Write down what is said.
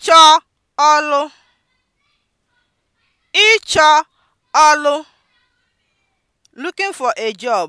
Ịchọ ọlụ Ịchọ ọlụ (looking for a job)